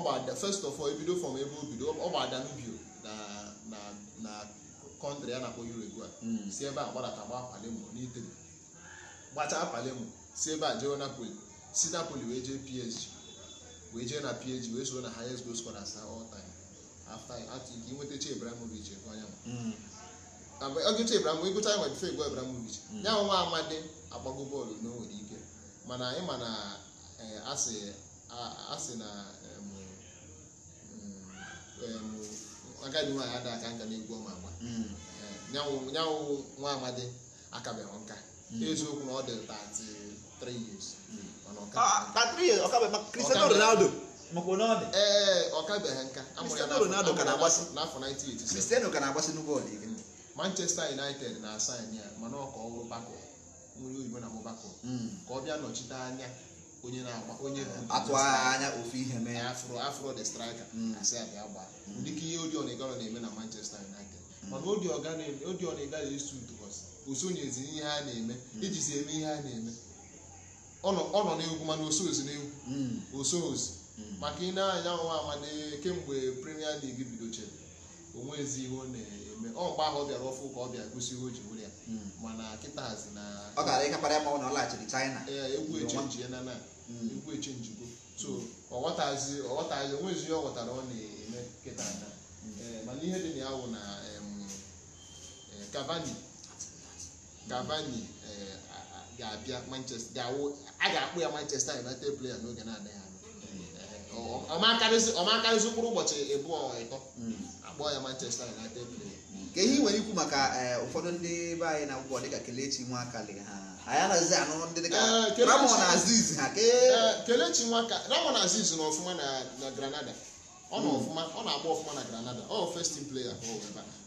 gbara first of all ebido fọm ebe o bido ọ gbara danubio na na na kọntrị a na-akpọ Uruguay si ebe a gbadata gbaa Palermo n'Italy gbachaa Palermo si ebe a jee Napoli si Napoli wee jee PSG wee jee na PSG wee soro na highest goal scorer asa all time after after nke inweta Che Ibrahimovic ekwe anyanwụ oge Che Ibrahimovic gụcha nwe bife egwe Ibrahimovic ya nwa amadi agbago bọọlụ na nwere ike mana ị ma na asị na agadi nwaanyị ada aka nka n'egwu ọma agba hmm. eh, nyanwụ nwa amadi akabeghị nka hmm. eziokwu na ọ dị years Ronaldo eh, eh, ọkabeghị nka amụrụ ya n'afọ 1987 hmm. Manchester United na-asaịn ya mana ọka ka ọ bako nwere oyibo na ka ọ bịa nọchite anya onye na-agba onye atụ anya ofu ihe mee afro afro the striker asị hmm. a bịa gbaa hmm. dịka ihe Odion ọ na-eme na Manchester United hmm. mana dị Igalo esi utubọs o osonyezi ihe a na-eme iji si eme ihe a na-eme ọ nọ n'egwu mana osozi n'egwu osozi maka ị na-anya nwa amade kemgbe Premier League bidochara onwezi ihe ọ na-eme ọ mgbe ahụ ọ bịara ọfụ ka ọ bịa gosi ihe o ji were ya hmm. mana kịta hazi na ọ gara ịkapara ya ma ọ na ọ laghachiri China ee egwu echenji na na hmm. egwu echenjigo so ọghọtazi ọghọtazi onwezi ihe ọ ghọtara ọ na-eme kịta ada. Hmm. Eh, mana ihe dị na ya wụ na eh, Cavani Cavani eh, ga-abịa Manchester ga-awụ a ga-akpụ ya Manchester United player n'oge na-adịghị anya ọma karịsị ụkpụrụ ụbọchị ịbụọ ịtọ kpọọ ya Manchester United player ka ihe nwere ikwu maka eh, ụfọdụ ndị be anyị na akwụkwọ dịka Kelechi nwaka dị ha anyị anaghịzi anụ ndị dịka eh, Ramon Aziz ha eh, Kelechi Nwaka Ramon Aziz nọ ọfụma na Granada ọ na hmm. ọfụma ọ na-agba ọfụma na Granada ọ first team player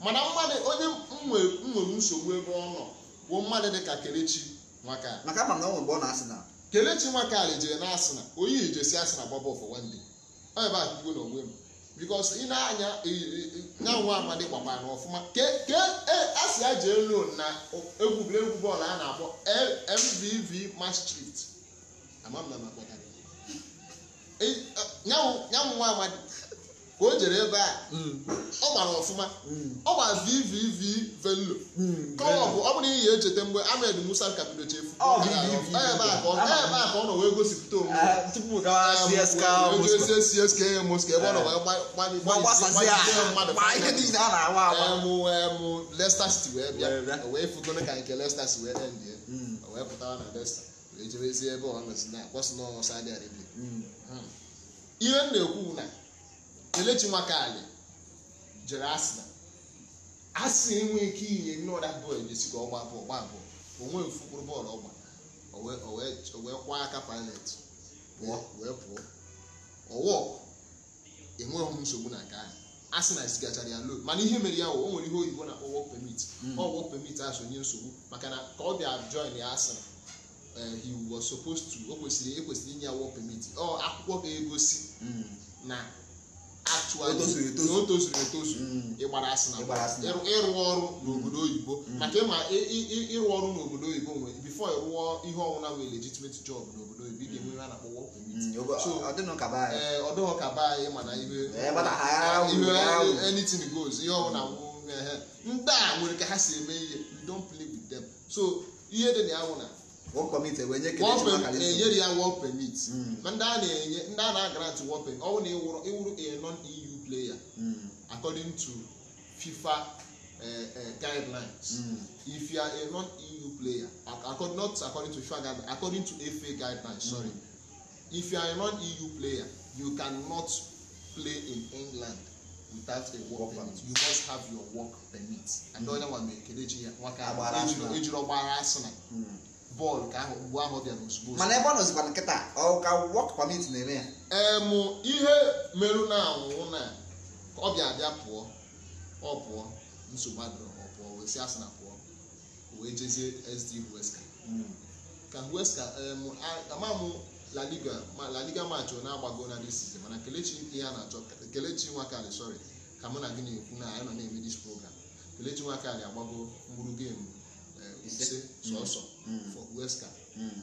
mana mmadụ onye nwere nsogbu ebe ọ nọ bụ mmadụ dịka Kelechi Nwaka maka ama na ọ nwere mgbe ọ na Arsenal Kelechi nwaka jere na Arsenal onye ijesi Arsenal gbaba ọfọ nwanne ọ ebe a kwugo na onwe m because ị na-anya nyanwa amadi gbakwa na ọfụma ke asị ya jee lon na egwuregwu bọọlụ a na-akpọ mvv maastricht ama m na nyanwa amadi ka o jere ebe a hmm. ọ gbara ọfụma hmm. ọ gba vvv velo hmm. kọlọbụ ọ bụrụ ihe echeta mgbe amed musa kapido chefu ebe a ka ọ nọ wee gosipụta onwe ah, ah, csk mosk ebe ọ nọ wee lesta siti wee bịa wee fugone ka nke lesta si wee wee na lesta wee jebezie ebe ọ nọ na ihe m na-ekwu na Kelechi Nwakali jere Arsenal asị enwe ike inye nnọda bọọlụ jesi ka ọ gbapụ gbapụ onwe mfụkwụrụ bọọlụ ọgba o wee kwa aka palet pụọ wee pụọ ọwọ enweghị m nsogbu na nke ahụ asị na esigachara ya lo mana ihe mere ya o nwere ihe oyibo na-akpọ work permit hmm. ọ work permit nsogbu maka na ka ọ bịa join ya asị eh, he was supposed to o kwesịrị ekwesịrị inye ya work permit ọ akwụkwọ ga-egosi hmm. na na o tozuru etozu asị na ịrụ ọrụ n'obodo oyibo mm. maka ịma ịrụ ọrụ n'obodo oyibo nwere bifo ịrụọ ihe ọnwụna nwere legitimate job n'obodo oyibo ga mm. ihe a na-akpọ work mm, ka anyị mana ihe anything goes ihe ndị a nwere ka ha si eme ihe you don't play so ihe dị na ya work eh, eh, permit e nye enyere ya work permit ma oh, ndị a na-enye ndị a na-agrant work permit ọ bụrụ na ịwụrụ a non EU player hmm. according to FIFA eh, guidelines hmm. if you are a non EU player not according to FIFA guidelines according to FA guidelines sorry hmm. if you are a non EU player you cannot play in England without a work permit you must have your work permit and onye nwa mere kelechi ya nwaka ejiri ọgbara bọọlụ ka ahụ mgbe ahụ bịara ozugbo mana ebe ọ nọzikwa nkịta ọ ka wọk pamit na-eme ya em ihe merụ na anwụ na ọ bịa abịa pụọ ọ pụọ nsogbu adịrọ ọ pụọ wee si asị na pụọ wee jezie sd huesca hmm. ka huesca ama m laliga ma laliga machọ na-agbago na disizi mana kelechi ihe a na-achọ kelechi nwakarị sorry ka mụ na gị na-ekwu na anyị nọ na-eme dis program kelechi nwakarị agbago mkpụrụ geemu Eh, ise mm. sọsọ mm. for mm. western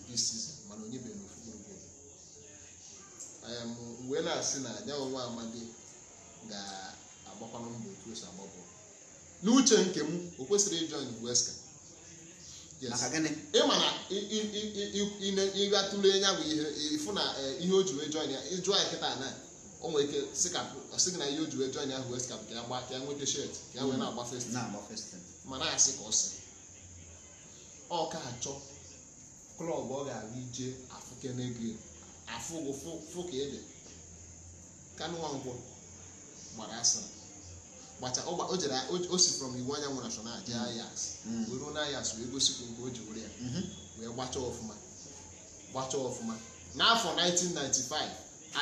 pieces eh, mana onye bere n'ofu gburugburu wee na-asị na anyanwụ nwa amadi ga-agbakwanụ mbọ otu o agba bọọlụ n'uche nke m o kwesịrị ịjọn western ịma na ịgatụle nya bụ ihe ịfụ na ihe o ji wee jọn ya ịjụọ ya kịta na o nwere ike sị gị na ihe o ji wee jọn ya hụ western ka ya nwete shet ka ya wee na-agba festin ma na-asị ka ọ sị ọka achọ klọb ọ ga-aga ije afụkenege afụgo fụka ede kanụwankwọ gbara asịrị gbacha o jere o si from iwu anyanwụ na mm. ayas mm. Were na ayas wee gosi nke o ji were ya mm-hmm. wee gbachaa ọfụma gbachaa ọfụma n'afọ 1995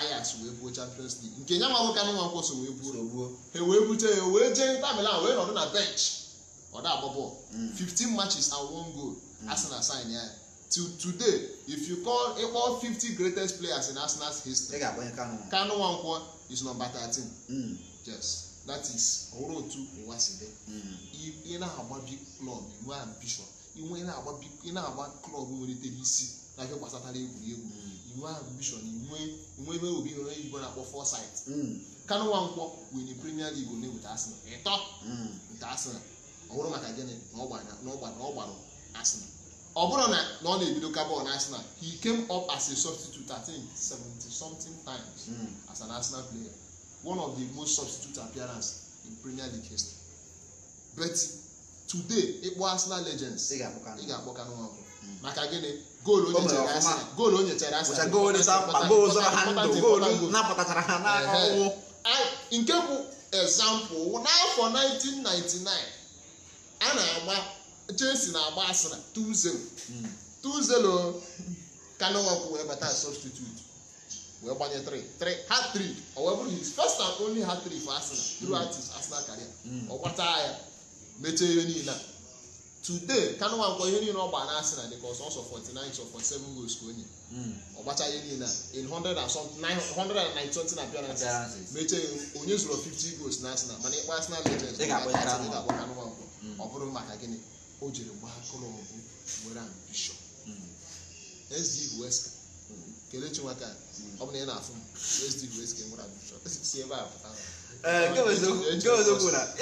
ayas wee buo champions league nke nya nwa nwoke anụnwa nkwọ so wee buo ha wee bute ya wee jee nta wee nọdụ na bench ọ 15 mm. matches and one goal mm. Arsenal sign ya till today if you call ịkpọ 50 greatest players in Arsenal's history Kanu Nwankwo is number 13 mm. yes that is ọrụ otu ụwa si dị ị na-agba big club inwe ambition inwe na-agba klọb nwelitere isi na ihe gbasatara egwuregwu inwe ambition inwe ebe obi nwere igbo na-akpọ foresight Kanu Nwankwo win Premier League na with Arsenal ịtọ Arsenal ọ bụrụ maka gịnị na ọ gbara Arsenal ọ bụrụ na ọ na-ebido ka bọọlụ Arsenal he came up as a substitute at think 70 something times hmm. as an Arsenal player one of the most substitute appearance in Premier League history but today ịkpọ Arsenal legends ị ga-akpọ Kanu ọkụ maka gịnị goolu o nyechara Arsenal nke bụ example n'afọ 1999 a na-agba Chelsea e na-agba asịrị 2-0 2-0 hmm. wee bata substitute wee gbanye 3 3 hat-trick o wee bụrụ first and only hat-trick for Arsenal hmm. throughout Arsenal career hmm. ọ gbata ya mechie ihe niile a today Kanu ihe niile ọ gba na Arsenal dịka ọsọ ọsọ 49 of 47 goals ka onye ọ gbacha ihe niile a in appearances mechie onye zụrụ 50 goals na mana ịkpa Arsenal legends ọ bụrụ maka gịnị o jiri gbaa kọlọmbụ were ambishọn SDUSK kelechi nwaka ọ bụ na ị na-afụ m SDUSK nwere ambishọn si ebe a pụta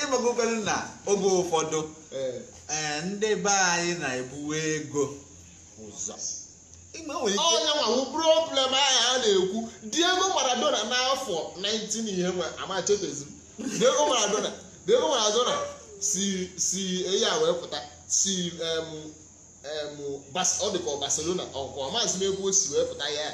ịgbagokwere na oge ụfọdụ e, ndị be anyị na-ebuwe ego ụzọ onye nwanwu problem ahụ a na-ekwu Diego Maradona n'afọ 19 ihe nwa amachetozi Diego Maradona Diego Maradona si si eyi a wee pụta si ọ dị ka Barcelona ọkwa maazị Megbuo osi wee pụta ya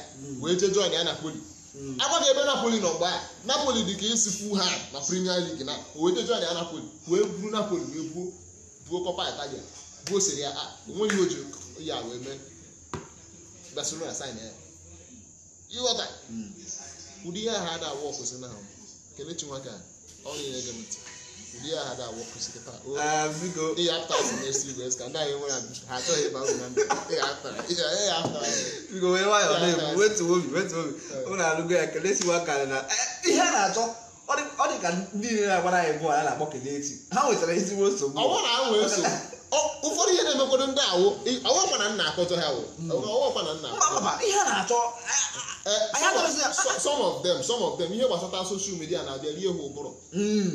wee jee jọn ya Napoli hmm. agwaghị ebe Napoli nọ mgbe a Napoli dị ka esi isi ha na Premier League na o wee jee jọn ya Napoli wee buru Napoli wee buo buo Copa Italia buo Serie A onweghị oji ya wee mee Barcelona sign ya ịghọta hmm. ụdị ihe ha ada awụ ọkwụsị na ahụ kelechi nwaka ọ na-enye gị ntị ndị agha da awọ kwụsị kịta ihe apụtara si na-esi igwe ka ndị anyị nwere ha achọghị ịba uru na ndụ biko wee nwayọọ na-ebu wetu obi wetu obi ụnụ alụgo ya kelesiwa karị na e, ihe a na-achọ ọ dị ka ndị niile na-agbara anyị bụ a na-akpọ kelechi ha nwetara ezigbo nsogbu ụfọdụ ihe na-emekwado ndị awụ ọwọkwa na nna akọtọ ha ọwọkwa na nna some of them some of them ihe gbasata soshal midia na-abịa rie ha ụbụrụ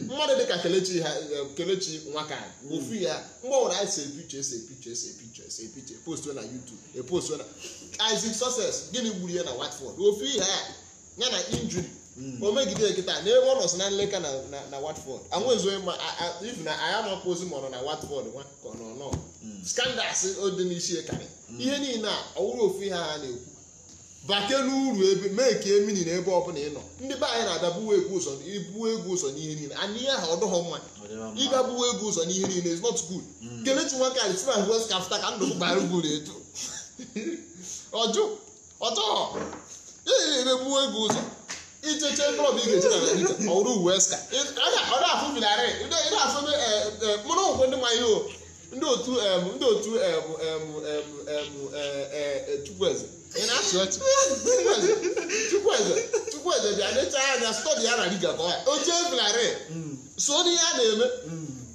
mmadụ dịka kelechi ha kelechi nwaka ofu ya mgbanwere anyị si epiche esi epiche esi epiche esi epiche postu na youtube epostu na isaac success gịnị gburu ya na watford ofu ihe ya ya na injuri Hmm. Omegide megide nkịta na ebe ọ nọsị na nleka na watford anwezoghị ma if na anyị amapụ ozi ma ọ nọ na watford nwa ka ọ nọ nọ hmm. skandals dị n'isi karị hmm. ihe niile a ọwụrụ ofu ihe ha na-ekwu bake n'uru ebe mee ka emini na ebe ọbụla ị nọ ndị be anyị na-abịa buwe egwu ụzọ ibuwe egwu ụzọ n'ihe niile anyị ihe ha ọdụghọ mma ịga buwe egwu ụzọ n'ihe niile is not good kelechi nwoke si na west kafta ka ndụ gbara ugwu na-eju ọjụ ọtọ ị na-ebuwe egwu ụzọ icheche klọb ị ga-eche na naija ọrụ uwe ska eh, eh, mụrụ nkwe ndị ihe ndị otu eh, ndị otu chukwueze chukwueze bịa necha anya stọdi ya na liga ka mm. ọ ya oche so n'ihe a na-eme mm.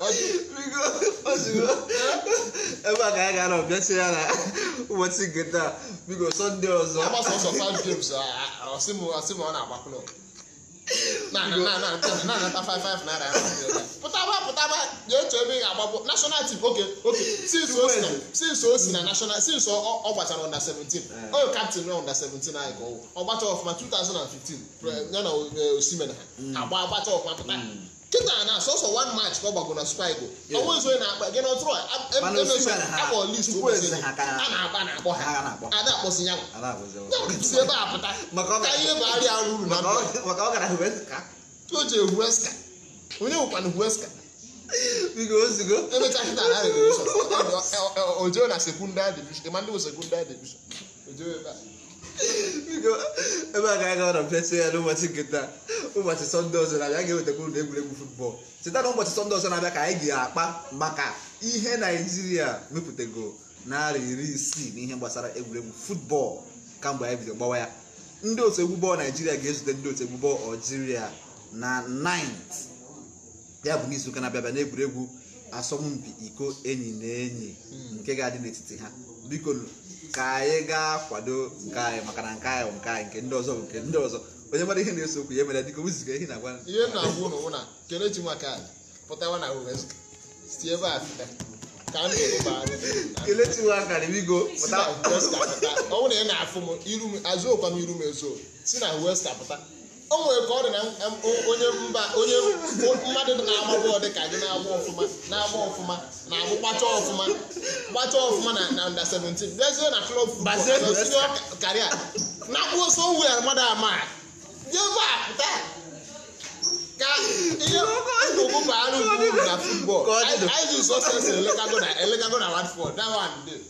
ebe a ka anyị gara ọbịachi ya na ụbọchị nke taa sọnde ọzọ ọ na-agba ga-eche ebe national team since o si na national since ọ gbachara under 17 eh. oyo captain na under 17 anyị ka ọ gbacha ọfụma 2015 ya na eh, osimena mm. agba agbacha ọfụma pụta mm. kịta na sọsọ one match ka ọ gbago na super eagles ọnwa na-akpa gị n'ọtụrụ akpọ list a na-agba na-akpọ ha ada akpọsi ya si ebe a pụta ka ihe bụ arịa na o ji ehueska onye nwekwana hueska emechaa kịta na revolushon ojo na sekundari division ma ndị bụ sekundari division ojo ebe a ebe a ka anyị gara na plesị ya n'ụbọchị nketa ụbọchị sọnde ọzọ na-abịa ga-ewetakwu na egwuregwu futbọọlụ cheta na ụbọchị sọnde ọzọ na-abịa ka anyị ga-akpa maka ihe naijiria mepụtago narị iri isii na ihe gbasara egwuregwu ka kamgbe anyị bido gbawa ya ndị otu egwu bọọlụ naijiria ga-ezute ndị otu egwu bọọlụ aljiria na 9 ya bụ n'izuụka na-abịabịa n'egwuregwu asọmpi iko enyi na enyi hmm. nke ga-adị n'etiti ha biko ka anyị ga-akwado nke anyị maka na nke anyị bụ nke anyị nke ndị ọzọ bụ nke ndị ọzọ onye mara ihe na-eso okwu ya mere dịka oziga ihe na-agwa ihe na-agwụ n'ụwa na kelechi maka pụtawa na wezụga si ebe a kelechi nwa ka bigo ọ bụrụ na ị na-afụ m azụọkwa m iru m ezo si na westa pụta o nwere ka ọ dị na onye mba onye mmadụ na-agba bọọlụ dị ka gị na-agba ọfụma na-agba ọfụma na-agbụ gbacha ọfụma gbacha ọfụma na na nda 17 bịazie na klọb karịa na-akpụ so we mmadụ ama jeba pụta ka ihe ngụgụ bụ anụ ugwu na futbọl anyị ji sọsesị elekago na elekago na watford that one day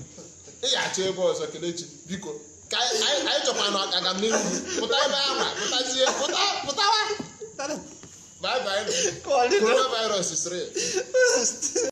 ị ga-achọ ebe ọzọ kelechi biko ka anyị chọkwa na agamnihu pụta ebe ahụ pụtazie pụta pụtawa coronavirus